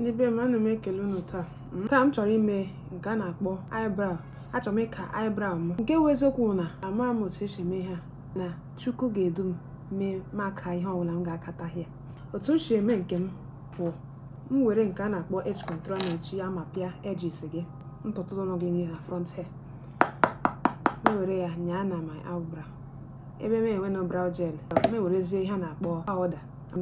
ndị be m ana m ekele unu taa hmm? taa m chọrọ ime nke a na-akpọ eyebrow achọrọ m ịka eyebrow m nke wụ na na ama m otu esi eme ha na chukwu ga-edu m mee maka ihe ọbụla m ga-akata ya otu m si eme nke m bụ m were nke a na-akpọ edge kọntrol na-eji ya ma pịa edges gị ntụtụ gị na front hair m were ya nyaa na my eyebrow ebe m enwe na brow gel m ihe a na-akpọ powder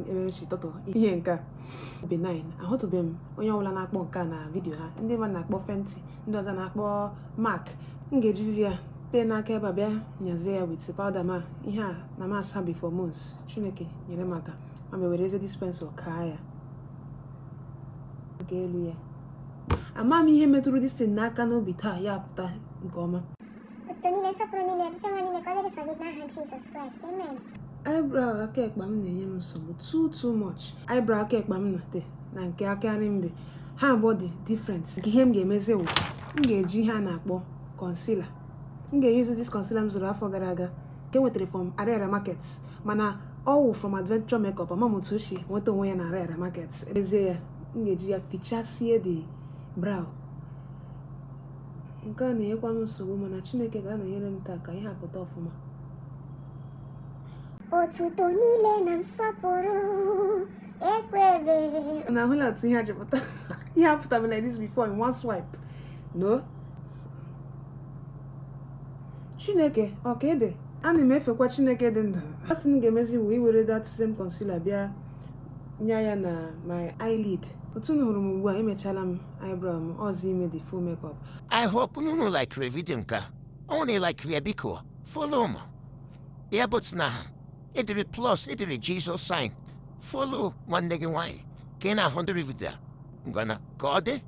emerechi tọtụ ihe nke a benign ahụtụbeghị m onye ọbụla na-akpọ nke a na vidiyo ha ndị mmadụ na-akpọ fenti ndị ọzọ na-akpọ mak m ga-ejizi ya tee n'aka ebe a bịa nyazie ya wit pawda ma ihe a na masa before months chineke nyere m aka ma were eze dispensa kaa ya nke elu ya ama m ihe metụrụ distin n'aka n'obi taa ya pụta nke ọma eyebrow aka ekpe m na-enye m nsogbu too too much eyebrow aka ekpe m nọte na nke aka nri m dị ha abụọ dị different nke ihe m ga-emezi wụ m ga-eji ihe a na-akpọ concealer m ga-eyuzu dis concealer m zụrụ afọ gara aga nke e nwetara from Ariara market mana ọ wụ from adventure makeup ama m otu ochie nweta onwe ya na arara market ezie ya m ga-eji ya fichasie de brow nke a na-enyekwa m nsogbu mana Chineke ga-anọnyere m taa ka ihe hapụta ọfụma otuto niile na nsọpụrụ ekwere na ahụla otu ihe ajụpụta ihe apụtara like this before in one swipe no chineke ọka ede ana m efekwa chineke dị ndụ asị m ga-emezi bụ iwere that same concealer bịa nye ya na my eyelid otu m hụrụ m ugbu a emechala m eyebrow m ọzọ ime the full makeup i hope nunu like reviding nka, only like ya biko follow m ya but na Edre plus, edre Jesus sign. Follow one leg away. Can I hundred with that? Gonna guard it.